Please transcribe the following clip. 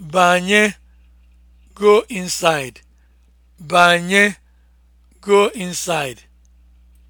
Banye go inside. Banye go inside.